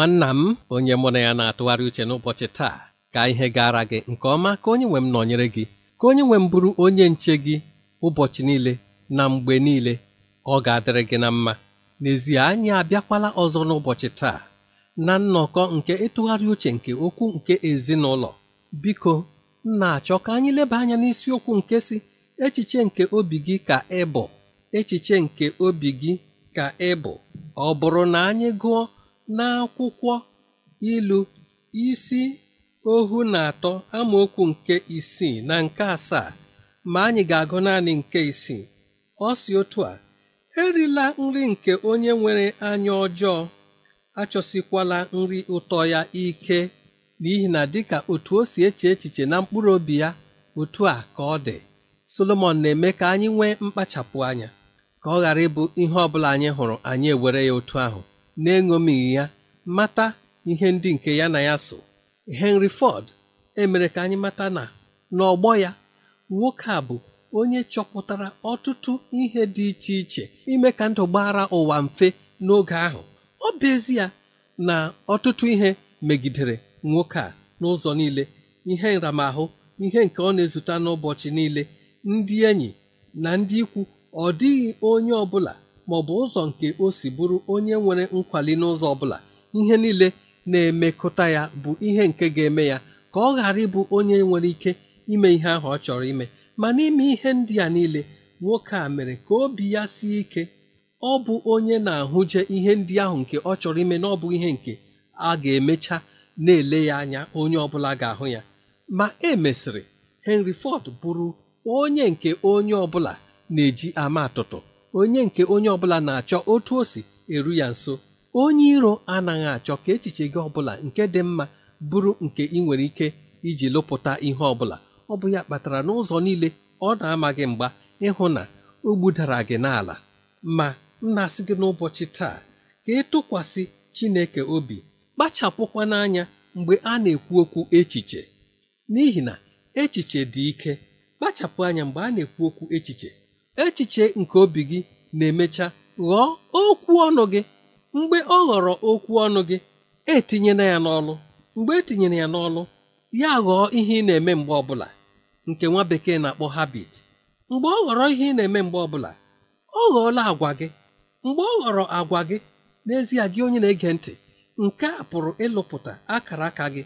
nwanna m onye mụ na ya na-atụgharị uche n'ụbọchị taa ka ihe gara gị nke ọma ka onye nwe m nọnyere gị ka onye nwe m bụrụ onye nche gị ụbọchị niile na mgbe niile ọ ga-adịrị gị na mma n'ezie anyị abịakwala ọzọ n'ụbọchị taa na nnọkọ nke ịtụgharị uche nke okwu nke ezinụlọ biko na-achọ ka anyị leba anya n'isiokwu nke si echiche nke obi gị ka ị bụ echiche nke obi gị ka ị bụ ọ bụrụ na anyị gụọ N'akwụkwọ ilu isi ohu na atọ amaokwu nke isii na nke asaa ma anyị ga-agụ naanị nke isii ọ si otu a erila nri nke onye nwere anya ọjọọ achọsikwala nri ụtọ ya ike n'ihi na dịka otu o si eche echiche na mkpụrụ obi ya otu a ka ọ dị Solomọn na-eme ka anyị nwee mkpachapụ anya ka ọ ghara ịbụ ihe ọ anyị hụrụ anyị ewere ya otu ahụ na-enyo n'eṅomighị ya mata ihe ndị nke ya na ya so Henry Ford emere ka anyị mata na n'ọgbọ ya nwoke a bụ onye chọpụtara ọtụtụ ihe dị iche iche ime ka ndụ gbara ụwa mfe n'oge ahụ ọ bụ ya na ọtụtụ ihe megidere nwoke a n'ụzọ niile ihe nramahụ ihe nke ọ na-ezute n'ụbọchị niile ndị enyi na ndị ikwu ọ dịghị onye ọ bụla bụ ụzọ nke o si bụrụ onye nwere nkwali n'ụzọ ọbụla ihe niile na-emekọta ya bụ ihe nke ga-eme ya ka ọ ghara ịbụ onye nwere ike ime ihe ahụ ọ chọrọ ime ma n'ime ihe ndị a niile nwoke a mere ka obi ya sie ike ọ bụ onye na-ahụje ihe ndị ahụ nke ọ chọrọ ime na ọ bụ ihe nke a ga-emecha na-ele ya anya onye ọbụla ga-ahụ ya ma e mesịrị Henry Ford bụrụ onye nke onye ọbụla na-eji ama atụtụ onye nke onye ọbụla na-achọ otu o si eru ya nso onye iro anaghị achọ ka echiche gị ọbụla nke dị mma bụrụ nke ị nwere ike iji lụpụta ihe ọbụla ọ bụ ya kpatara n'ụzọ niile ọ na-ama gị mgba ịhụ na o gbudara gị n'ala ma m na-asị gị n'ụbọchị taa ka ị e tụkwasị Chineke obi kpachapụkwa n'anya mgbe a na-ekwu okwu echiche n'ihi na echiche dị ike kpachapụ anya mgbe a na-ekwu okwu echiche Echiche nke obi gị na-emecha ghọọ okwu ọnụ gị, mgbe ọ ghọrọ okwu ọnụ gị, etinyela ya n'ọlụ, mgbe etinyere ya n'ọlụ, ya ghọọ ihe ị na-eme mgbe ọbụla, nke nwa bekee na-akpọ habit. Mgbe ọ ghọrọ ihe ị na-eme mgbe ọbụla, ọ ghọọla agwa gị. Mgbe ọ ghọrọ agwa gị, n'ezie gị onye na-ege ntị, nke a pụrụ ịlụpụta akara aka gị,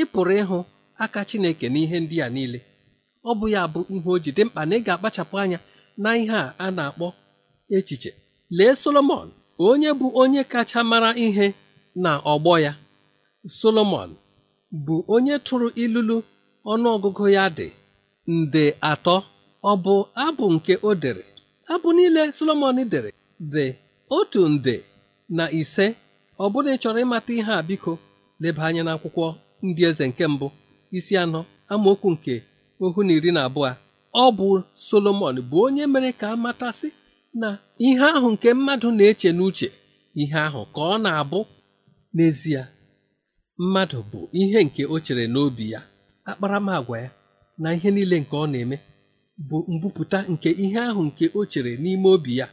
ị pụrụ ịhụ aka Chineke n'ihe ndị a niile. Ọ bụ ya bụ ihe o ji dị mkpa na ị ga-akpachapụ anya na ihe a a na-akpọ echiche lee solomon onye bụ onye kacha mara ihe na ọgbọ ya solomon bụ onye tụrụ ilulu ọnụọgụgụ ya dị nde atọ ọ bụ abụ nke o abụ niile solomon dere dị otu nde na ise ọ bụrụ na ị ịmata ihe a biko leba anya n'akwụkwọ ndị eze nke mbụ isi anọ amaokwu nke ohu na iri na abụọ ọ bụ Solomọn bụ onye mere ka amatasị na ihe ahụ nke mmadụ na-eche n'uche ihe ahụ ka ọ na-abụ n'ezie mmadụ bụ ihe nke o chere n'obi ya akparamagwa ya na ihe niile nke ọ na-eme bụ mbupụta nke ihe ahụ nke o chere n'ime obi ya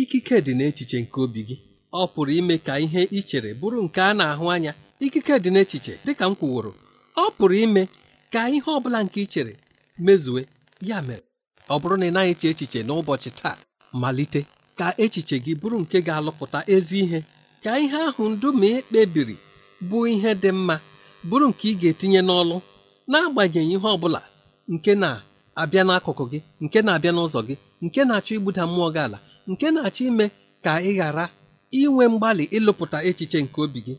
ikike dị n'echiche nke obi gị ọ pụrụ ime ka ihe i chere bụrụ nke a na-ahụ anya ikike dị n'echiche dị ka m kwuworo ọ pụrụ ime ka ihe ọ bụla nke i chere mezue ya mere ọ bụrụ na ị naghị eche echiche n'ụbọchị taa malite ka echiche gị bụrụ nke ga-alụpụta ezi ihe ka ihe ahụ ndụ ma ị e kpebiri bụ ihe dị mma bụrụ nke ị ga-etinye n'ọlụ n'agbanyeghị ihe ọ bụla nke na-abịa n'akụkụ gị nke na-abịa n'ụzọ gị nke na-achọ igbuda mmụọ gị ala nke na-achọ ime ka ị ghara inwe mgbalị ịlụpụta echiche nke obi gị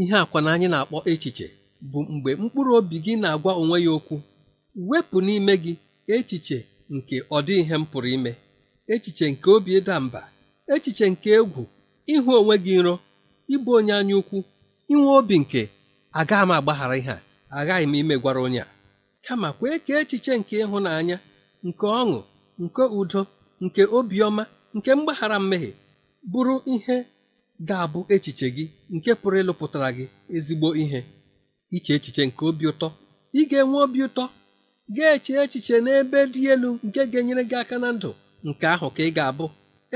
ihe akwa na anyị na-akpọ echiche bụ mgbe mkpụrụ obi gị na-agwa onwe ya okwu wepụ n'ime gị echiche nke ọdị ihe m pụrụ ime echiche nke obi ịda mba echiche nke egwu ịhụ onwe gị nro ịbụ onye anya ukwu inwe obi nke aga m agbaghara ihe a aghaghị m imegwara onye a kama kwee ka echiche nke ịhụnanya nke ọṅụ nke udo nke obiọma nke mgbaghara mmehie bụrụ ihe ga-abụ echiche gị nke pụrụ ịlụpụtara gị ezigbo ihe iche echiche nke obi ụtọ ị ga-enwe obi ụtọ ga-eche echiche n'ebe dị elu nke ga-enyere gị aka na ndụ nke ahụ ka ị ga-abụ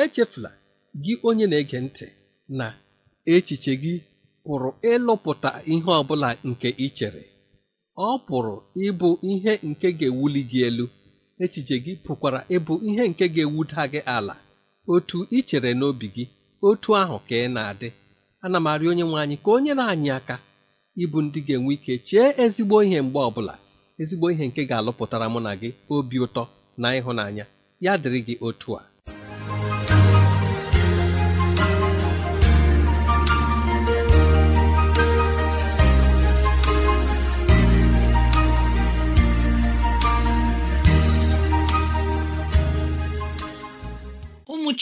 echefula gị onye na-ege ntị na echiche gị pụrụ ịlụpụta ihe ọ bụla nke ị chere ọ pụrụ ịbụ ihe nke ga-ewuli gị elu echiche gị pụkwara ịbụ ihe nke ga-ewuda gị ala otu ị chere n'obi gị otu ahụ ka ị na-adị ana m arị onye nwe anyị ka o nyere anyị aka ịbụ ndị ga-enwe ike chee ezigbo ihe mgbe ọbụla ezigbo ihe nke ga-alụpụtara mụ na gị obi ụtọ na ịhụnanya ya dịrị gị otu a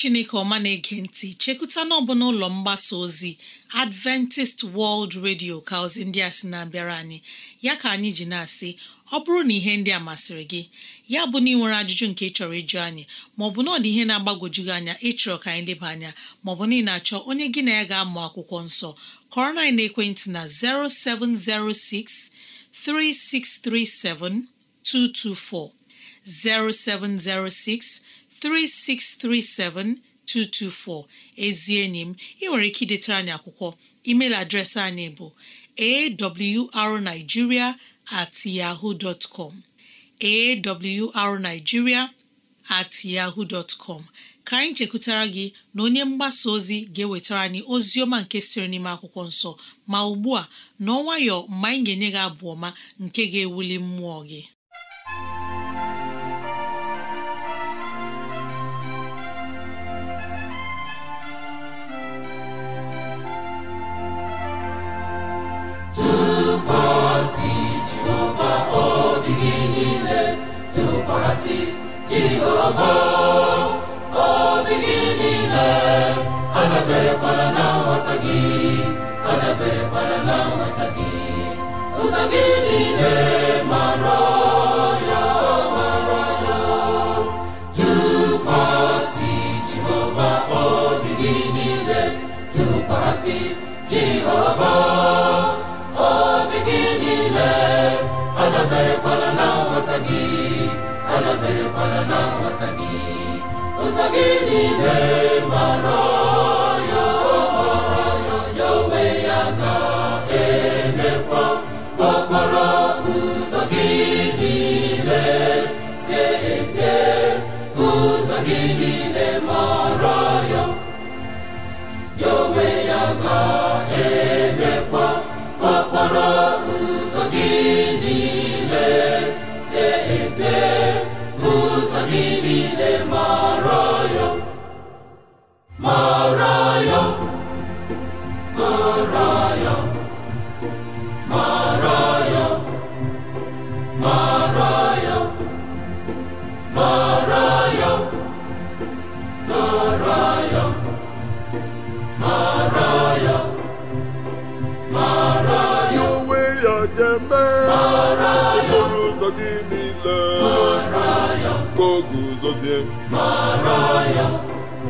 chineke ọma na-ege ntị chekụta n'ọbụ n'ụlọ mgbasa ozi adventist world radio ka ndị a sị na-abịara anyị ya ka anyị ji na-asị ọ bụrụ na ihe ndị a masịrị gị ya bụ na ị nwere ajụjụ nke ị chọrọ ịjụ anyị maọbụ na ọ dị ihe na-agbagwoju gị anya ịchọrọ ka anyị leba anya maọbụ na ị na-achọ onye gị na ya ga-amụ akwụkwọ nsọ kọrọ na ekwentị na 0706 3637224 0706 ezi enyi m ị nwere ike idetara anyị akwụkwọ email adreesị anyị bụ awrnigeria at yahoo dot com awrnigeria at yahoo dot com ka anyị chekwutara gị na onye mgbasa ozi ga-ewetara anyị ozi ọma nke siri n'ime akwụkwọ nsọ ma ugbu a n'ọnwayọ mgbe anyị ga-enye gị abụ ọma nke ga-ewuli mmụọ gị adaberekwala na nghọta gị adaberekwala na nghọta gị ụzọ gị niile ụzọ gị niile mara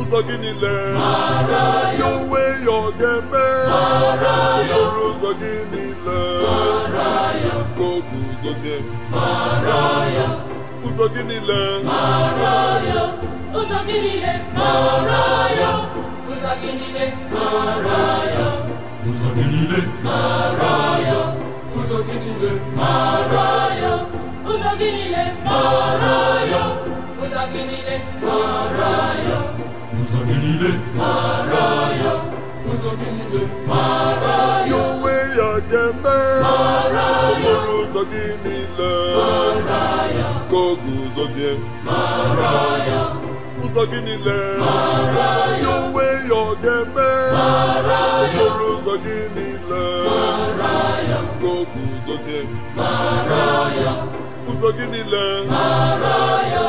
ụzọ gị niile ya onwe ya ọ ga-eme ọrụ ụzọ gị niile ka o guzozie ụzọ gị niile ụzọ gị niile ụzọ gị niile ụzọ gị niile Ụzọ gị niile mara ya. Ụzọ gị niile mara ya. Ụzọ gị niile mara ya. Ya onwe ya ga-eme. Mara ya. Okporo ụzọ gị niile. Mara ya. Ka ọ guzozie. Mara ya. Ụzọ gị niile. Mara ya. Ya onwe ya ga-eme. Mara ya. Okporo ụzọ gị niile. Mara ya. Ka ọ guzozie. ya. Ụzọ gị niile. Mara ya.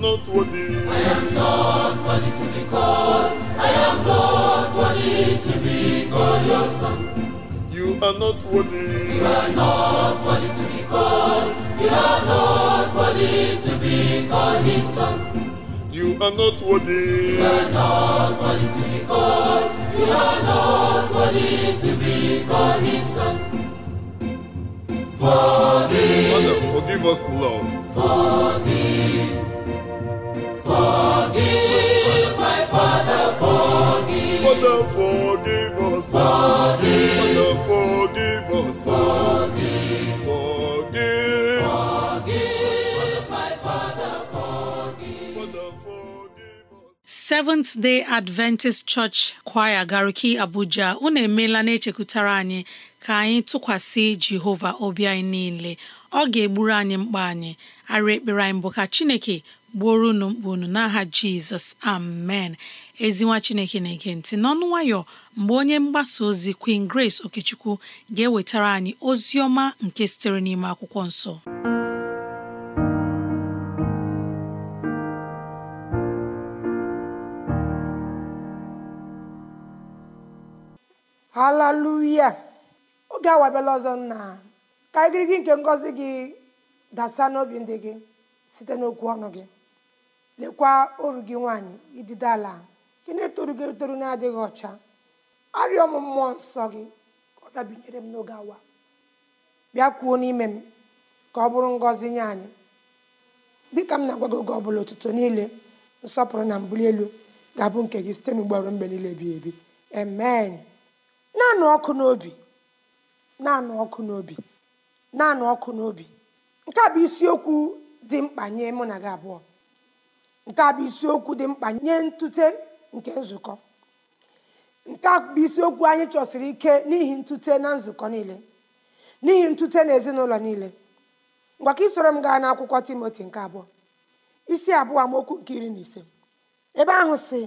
not worthy. I am not worthy to be called. I am not worthy to be called your son. You are not worthy. You are not worthy to be called. You are not worthy to be called his son. You are not worthy. You are not worthy to be called. You are not worthy to be called his son. Forgive. Father, forgive us, Lord. Forgive. Forgive my Father, forgive. forgive my Father, forgive. Seventh Day Adventist Church Choir Gariki Abuja unu emeela na-echekwutara anyị ka anyị tụkwasị Jehova obi anyị niile ọ ga-egburu anyị mkpa anyị arụ ekpere anyị bụ ka Chineke gbuoro unu mkpa unu n'aha jizọs amen ezinwa chineke na-ege ntị n'ọnụ nwayọ mgbe onye mgbasa ozi queen grace okechukwu ga-ewetara anyị ozi ọma nke sitere n'ime akwụkwọ nsọ haleluya oge awabịala ọzọ nna ka igirigi nke ngọzi gị dasa n'obi ndị gị site n'okwu ọnụ gị lekwa oru gị nwaanyị idide ala gị na-etoru gị etoru na-adịghị ọcha arịọ m mmụọ nsọ gị ọ dabinyere m n'oge awa bịa kwuo n'ime m ka ọ bụrụ ngọzi nye anyị dịka m na-agwa gị oge ọ bụla ụtụtụ niile nsọpụrụ na mbuli elu ga-abụ nke gị site n'ugboro mgbe niile bi ebi amen naanị ọkụ n'obi naanị ọkụ n'obi ọkụ n'obi nke a bụ isiokwu dị mkpa nye mụ na gị abụọ nke a bụ isiokwu dị mkpa nye ntute nke nzukọ nke a bụ isiokwu anyị chọsiri ike n'ihi ntute na nzukọ niile n'ihi ntute na ezinụlọ niile ngwa isoro m gaa n'akwụkwọ timoti nke abụọ isi abụọ amaokwu nke iri na ise ebe ahụ si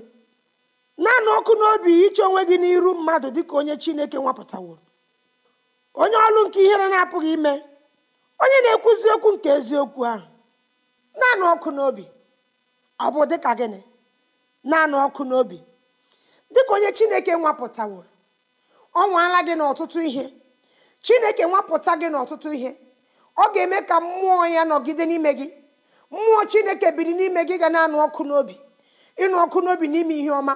naanị ọkụ n'obi iche onwe gị n'iru mmadụ dị ka onye chineke nwapụtaworo onye ọlụ nke ihere na-apụghị ime onye na-ekwuzi okwu nke eziokwu ahụ naanị ọkụ n'obi ọ bụ dịka gịnị naanị ọkụ n'obi dịka onye chineke nwapụtawo ọ nwaala gị n'ọtụtụ ihe chineke nwapụta gị n'ọtụtụ ihe ọ ga-eme ka mmụọ ya nọgide n'ime gị mmụọ chineke biri n'ime gị ga na-anụ ọkụ n'obi ịnụ ọkụ n'obi n'ime ihe ọma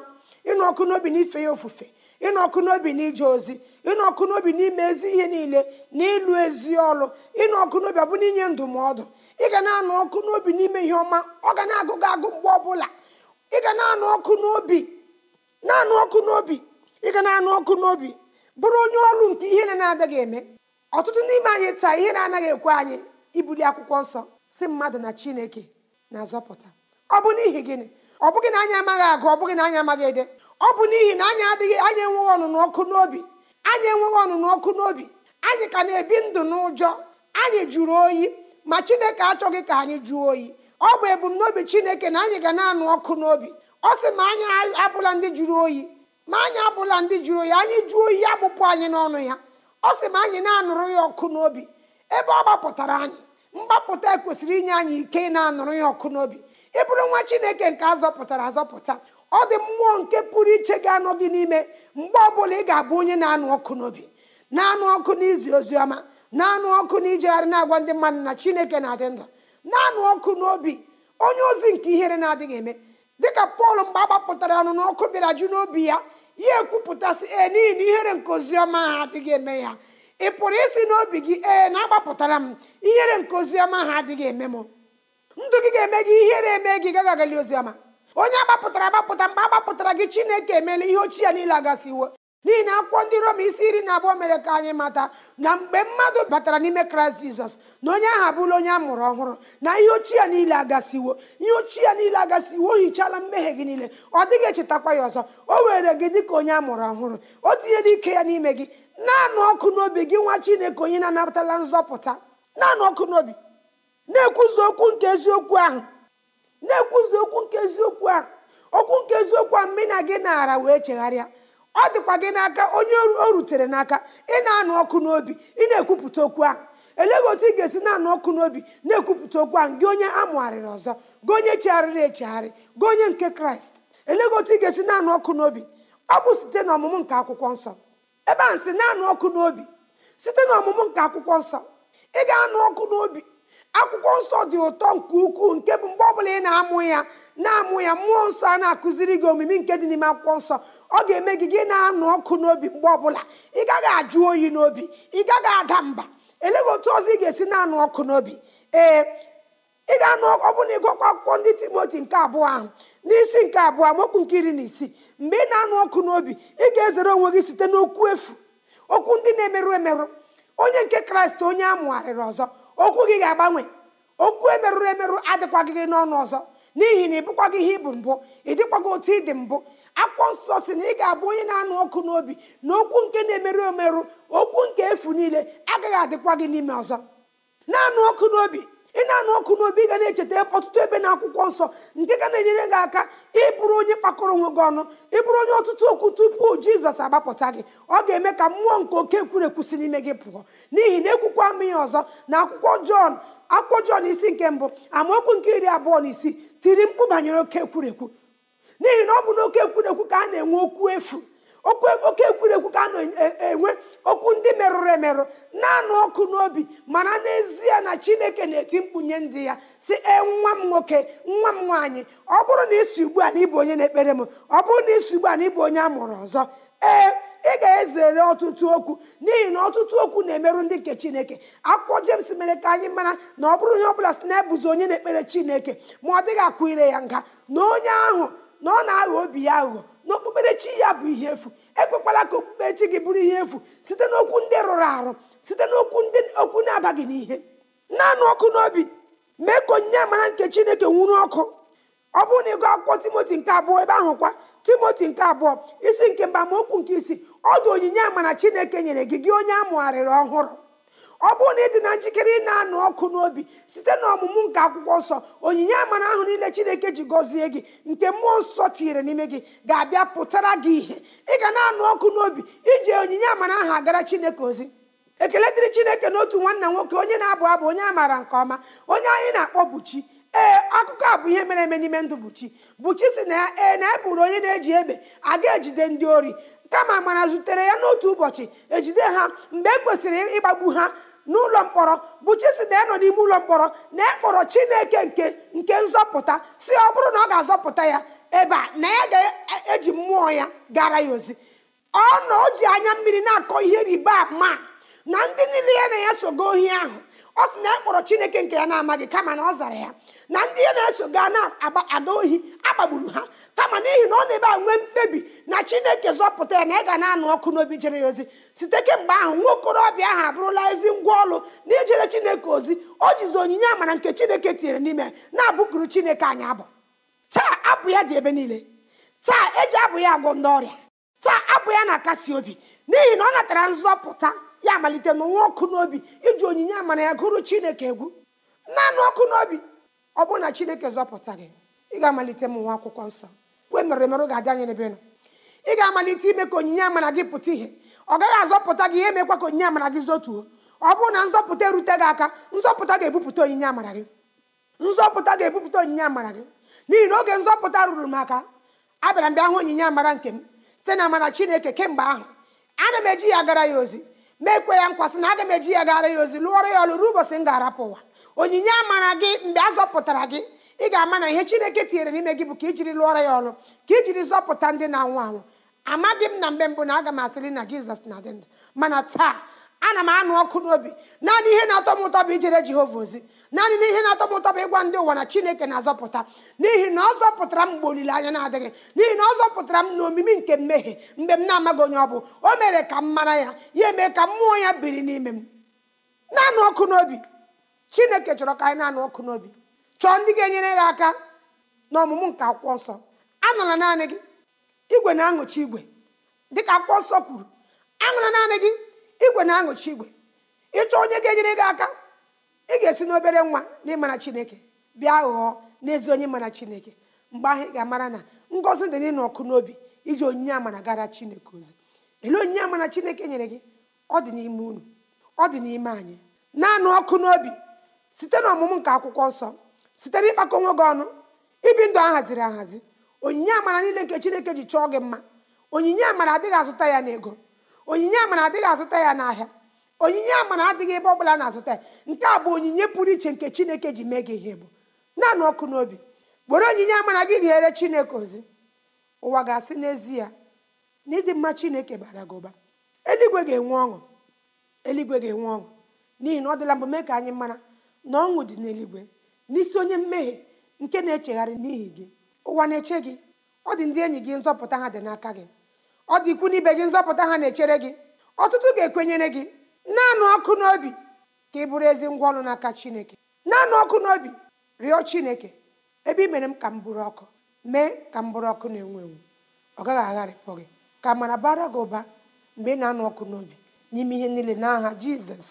ịnụ ọkụ n'obi n'ife ya ofufe ịnụ ọkụ n'obi n'ije ozi ịnụ ọkụ n'obi n'ime ezi ihe niile na ịlụ ezi ọlụ ịnụ ọkụ n'obi ọ ọbụna inye ndụmọdụ ị ga na-anụ ọkụ n'obi n'ime ihe ọma ọ ga na-agụ agụ mgbe ọbụla ị ga na-anụ ọkụ n'obi na-anụ ọkụ n'obi ị ga na-anụ ọkụ n'obi bụrụ onye ọrụ nke ihe na-adịghị eme ọtụtụ n'ime anyị taa ihe na-anaghị ekwe anyị ibuli akwụkwọ nsọ si mmadụ na chineke na-azọpụta ọ bụ n'ihi gịnị ọ bụghị na anyị amaghị agụ ọ bụghị na anyị amaghị ede ọ bụ n'ihi na anyị adịghị anyị enweghị ọnụnụ ọkụ n'obi anyị enweghị ọnụnụ ọkụ n'obi anyị ka na-ebi ndụ n'ụjọ anyị jụrụ oyi ma chineke achọghị ka anyị jụọ oyi ọ bụ ebumnobi chineke na anyị ga na-anụ ọkụ n'obi ọ sị ma anyị abụla ndị jụrụ oyi ma anyị abụla ndị jụrụ oyi anyị jụọ oyi ya anyị n'ọnụ ya ọ sị ma anyị na-anụrụ ya ọkụ n'obi ebe ọ gbapụtara anyị mgbapụta kwesịrị inye anyị ike ị na-anụrụ ya ọkụ n'obi ị bụrụ nwa chineke nke azọpụtara azọpụta ọ dị mmụọ nke pụrụ iche ga-anọ gị n'ime mgbe ọbụla ị ga-abụ onye na-anụ ọkụ n'obi na-anụ ọkụ n'izi oziọma na-anụ ọkụ na ijegharị na-agwa ndị mmadụ na chineke na-adị ndụ na-anụ ọkụ n'obi onye ozi nke ihere na-adịghị eme dịka pọl mgbe a gbapụtara ọnụ n'ọkụ bịara ju n'obi ya ya ekwupụtasị ee n'ihi na ihere nke oziọma ha adịghị eme ya ị pụrụ isi n'obi gị ee na-agbapụtara m ihere nke oziọma ha adịghị eme m ndụ gị ga-eme gị ihere eme gị gaghị agali oziọma onye agbapụtara agbapụta mgbe agbapụtara gị chineke emeela ihe ochie ya niile agasiwo n'ihi na akwụkwọ ndị Rom isi iri na abụọ mere ka anyị mata na mgbe mmadụ batara n'ime kraịst jizọs na onye ahụ abụla onye a mụrụ ọhụrụ na ihe ochie ya niile agasiwo ihe ochie ya niile agasiwo hichala hichaala mmehie gị niile ọ dịghị echetakwa ya ọzọ o were gị dị ka onye a mụrụ ọhụrụ o tinyela ike ya n'ime gị na ọkụ n'obi gị nwa chineke onye na-anapụtala nzọpụta na ọkụ n'obi na-ekwuzi okwu nke eziokwu ahụ na-ekwuzi okwu nke eziokwu ahụ okwu nke eziokwu ahụ na gị naara wee chegharịa ọ dịkwa gị n'aka onye o rutere n'aka ị na-anụ ọkụ n'obi ị na-ekwupụta okwu a eleghị otu ị ga-esi na-anụ ọkụ n'obi na-ekwupụta okwu a gị onye amụgharịrị ọzọ gị onye chegharịrị echegharị gị onye nke kraịst eleghị otu ị ga-esi na-anụ ọkụ n'obi ọ bụ site n'ọmụmụ nke akwụkwọ nsọ ebe a nsị na-anụ ọkụ n'obi site n'ọmụmụ nke akwụkwọ nsọ ị ga-anụ ọkụ n'obi akwụkwọ nsọ dị ụtọ nke ukwuu nke bụ mgbe bụla ị na-amụ ya na-amụ ya mmụọ nsọ a na-akụziri gị omimi nke dị n'ime akwụkwọ nsọ ọ ga-eme gị gị na-anụ ọkụ n'obi mgbe ọbụla ị gaghị ajụ oyi n'obi ị gaghị aga mba elee otu ọzọ ị ga-esi na-anụ ọkụ n'obi ee ị ga-anụ ọ bụ na ịgụkwa akwụkwọ ndị timoti nke abụọ ahụ n'isi nke abụọ amaokwu nke iri na isii mgbe ị na-anụ ọkụ n'obi ị ga-ezere onwe gị site n'okwu efu okwu ndị na-emerụ emerụ onye nke kraịst onye amụgharịrị ọzọ okwu gị ga-agbanwe okwu emerụrụ emerụ adịkwaghị gị n'ọnụ ọzọ n'ihi na ị bụkwaghị ihe ị bụ mbụ ị dịkwaghị otu ị dị mbụ akwụkwọ nsọ si na ị ga-abụ onye na-anụ ọkụ n'obi na okwu nke na-emerụ emerụ okwu nke efu niile agaghị adịkwa gị n'ime ọzọ na-anụ ọkụ n'obi ị na-anụ ọkụ n'obi ị ga na-echeta ọtụtụ ebe na akwụkwọ nsọ nke ga na-enyere gị aka ịbụrụ onye kpakọrọ onwe gị ọnụ ịbụrụ onye ọtụtụ okwu tupu jizọs agbapụta gị ọ ga-eme ka mmụọ nke oke si n'ime gị pụọ n'ihi na ekwukwa ama ọzọ na akwụkwọ jọn akwụkwọ jọn isi nke mbụ amaokwu nke iri abụọ na isii tiri mkpu banyere oke ekwurekwu n'ihi na ọ bụ na oke ekwurekwu ka a na-enwe okwu efu oke ekwurekwu ka a na-enwe e, e, okwu ndị merụrụ emerụ na-anụ ọkụ n'obi mana n'ezie na chineke na-eti mkpụnye ndị ya si e nwa m nwoke nwa m nwaanyị ọ bụrụ na isi ugbu a na ịbụ onye na-ekpere m ọ bụrụ na isi ugbu a na ịbụ onye a mụrụ ọzọ ee ị ga-ezere ọtụtụ okwu n'ihi na ọtụtụ okwu na-emerụ ndị nke chineke akwụkwọ jems mere ka anyị mara na ọ bụrụ onye bụla si na ebụzi onye na-ekpere chineke ma ọ dịghị akwụ ire ya nga na onye ahụ na ọ na-aghọ obi ya aghụghọ na okpukperechi ya bụ ihe efu ekwekwala ka okpukperechi gị bụrụ ihe efu site n'okwu ndị rụrụ arụ site n'okwu ndị okwu na-abaghị n'ihe naanị ọkụ n'obi mee ka onyinye amara nke chineke nwụrụ ọkụ ọ bụrụ na ịgụ akwụkwọ timoti nke abụọ ebe ahụ kwa timoti nke abụọ isi nke mba okwu nke isi ọ dụ onyinye amara chineke nyere gị gị onye amụgharịrị ọhụrụ ọ bụrụ na ị dị na njikere ị na-anụ ọkụ n'obi site na ọmụmụ nke akwụkwọ nsọ onyinye amara ahụ niile chineke ji gọzie gị nke mmụọ nsọ tinyere n'ime gị ga-abịa pụtara gị ihe ị ga na-anụ ọkụ n'obi iji onyinye amara ahụ agara chineke ozi ekele dịrị chineke na otu nwanna nwoke onye na-abụ abụ onye amara nke ọma onye anyị na-akpọ buchi ee akụkọ a bụ ihe mere eme n'ime ndụ buchi buchi si na ya ee na e bụrụ onye na-eji egbe aga ejide ndị ori kama amara zutere ya n'otu ụbọchị ejide ha mgbe e kwesịrị ịgbagbu ha n'ụlọ mkpọrọ bụ na nọ n'ime ụlọ mkpọrọ na ekpọrọ Chineke nke nke nzọpụta si ọ bụrụ na ọ ga-azọpụta ya ebe a na ya ga-eji e, mmụọ ya gara ya ozi ọ na o ji anya mmiri na-akọ ihe riba ma na ndị niile ya na ya sogo ohi ahụ ọ sị na ya e kpọrọ chineke nke ya na-amaghị kama na ọ zara ya na ndị ya na-eso gaa na-aga ohi agbagburu ha kama n'ihi na ọ na-ebe a nwee mkpebi na chineke zọpụta ya na ị ga na-anụ ọkụ n'obi jere ya ozi site kemgbe ahụ nwa okorobịa ahụ abụrụla ezi ngwa ọlụ na ijere chineke ozi o jizi onyinye amara nke chineke tinyere n'ime na-abụkuru chineke anyị abụ taa abụ ya dị ebe niile taa eji abụ ya agwọ ndị ọrịa taa abụ ya na-akasi obi n'ihi na ọ natara nzọpụta ya amalite n'ụwa ọkụ n'obi iji onyinye amara ya gụrụ chineke egwu naanị ọkụ n'obi ọ bụrụ na chineke zọpụta gị ị ga-amalite m nwa akwụkwọ nsọ kwe mere merụ ga-abịa anyị n'ebe nọ ị ga-amalite ime ka onyinye amara gị pụta ihe ọ gaghị azọpụta gị ihe mekwa ka onyinye amara gị zotuo ọ bụrụ na nzọpụta erute gị aka nzọpụta ga-ebupụta onyinye amara gị nzọpụta ga-ebupụta onyinye amara gị n'ihi na oge nzọpụta ruru m aka abịara m bịa hụ onyinye amara nke m si na amara chineke kemgbe ahụ ana m eji ya gara ya ozi mekwe ya nkwasị na aga m eji ya gara ya ozi lụọrọ ya ọlụ ruo ụbọchị m ga-arapụ ụwa onyinye amara gị mgbe a zọpụtara gị ị ga-ama na ihe chineke tinyere n'ime gị bụ ka ijiri lụọrọ ya ọlụ ka ijiri zọpụta ndị na-anwụ anwụ amaghị m na mgbe mbụ na aga m asịrị na jizọs na-adị ndụ mana taa ana m anụ ọkụ n'obi naanị ihe na-atọ m ụtọ bụ ijere jehova ozi naanị n'ihe na-atọ m ụtọ bụ ịgwa ndị ụwa na chineke na-azọpụta n'ihi na ọ zọpụtara m mgbe olileanya na-adịghị n'ihi na ọ zọpụtara m n'omimi nke mmehie mgbe m na-amaghị onye ọ bụ o mere ka m mara ya ya eme ka mmụọ ya biri n'ime m naanị ọkụ n'obi chineke chọrọ ka anyị naanị ọkụ n'obi chọọ ndị ga-enyere gị aka n'ọmụmụ nke akwụkwọ nsọ anọla naanị gị igwe na-aṅụchi igwe dịka akwụkwọ nsọ kwuru anọla naanị gị igwe na-aṅụchi igwe ịchọ onye ga-enyere gị aka ị ga-esi n'obere nwa na ịmara chineke bịa ghọọ n'ezi onye mara chineke mgbe ahụ ga-amara na ngọzi dị n'ịnọkụ ọkụ n'obi iji onyinye amara gara chineke ozi ele onyinye amara chineke nyere gị ọ dị n'ime unu ọ dị n'ime anyị naanị ọkụ n'obi site na ọmụmụ nke akwụkwọ nsọ site na ịkpakọ nwe gị ọnụ ibi ndụ ahaziri ahazi onyinye amara niile nke chineke ji chọọ gị mma onyinye amara adịghị azụta ya n'ego onyinye amara adịghị azụta ya n'ahịa onyinye amara adịghị ebe ọ bụla na-azụta ya nke a bụ onyinye pụrụ iche nke chineke ji mee gị ihe bụ naanị ọkụ n'obi were onyinye amara gị ghere chineke ozi ụwa ga-asị n'ezie na ịdị mma chineke bara gị ụba eluigwe ga-enwe ọṅụ eluigwe ga-enwe ọṅụ n'ihi na ọ dịla mbụ mee ka anyị mara na ọṅụ dị n'eluigwe n'isi onye mmehie nke na-echegharị n'ihi gị ụwa na-eche gị ọ dị ndị enyi gị nzọpụta ha dị n'aka gị ọ dị ikwu n'ibe gị nzọpụta ha na-echere gị ọtụtụ ga-ekwenyere gị naanị ọkụ n'obi ka ị bụrụ ezi ngwa ọrụ n'aka chineke naanị ọkụ n'obi rịọ chineke ebe ị mere m ka m bụrụ ọkụ mee ka m bụrụ ọkụ na-enwu enwu ọ gaghị agharịpụ gị ka amara bara gị ụba mgbe ị na-anụ ọkụ n'obi n'ime ihe niile n'aha jizọs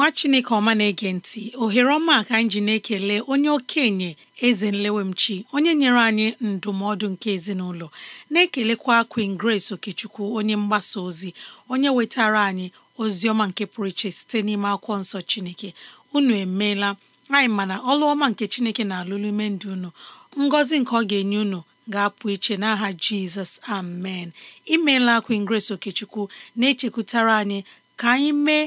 nwa chineke ọma na-ege ntị ohere ọma ka anyị ji na-ekele onye okenye eze nlewemchi onye nyere anyị ndụmọdụ nke ezinụlọ na-ekelekwa Queen Grace Okechukwu onye mgbasa ozi onye wetara anyị ozi ọma nke pụrụ iche site n'ime akwụkwọ nsọ chineke unu emeela anyị mana ọlụ ọma nke chineke na-alụlụ ime ndụ unu ngọzi nke ọ ga-enye unu ga-apụ iche n'aha jizọs amen imeela Queen Grace Okechukwu na-echekwutara anyị ka anyị mee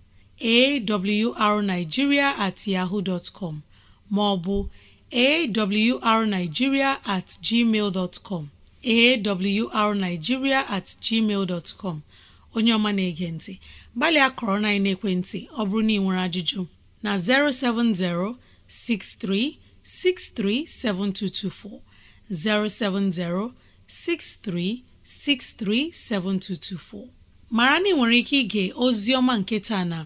awrnigeria at yahoo dot com maọbụ awrnigeria at gmail dot com awrnigeria at gmail dot com onye ọma na-ege ntị gbalịa kọrọ na ekwentị ọ bụrụ na ị nwere ajụjụ na 070 6363 7224 070 6363 7224 mara na ị nwere ike ige ozi ọma nke taa na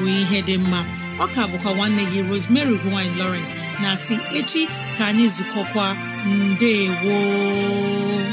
bụ ihe dị mma ọka bụkwa nwanne gị Rosemary gine lowrence na si echi ka anyị zukọkwa mbe gboo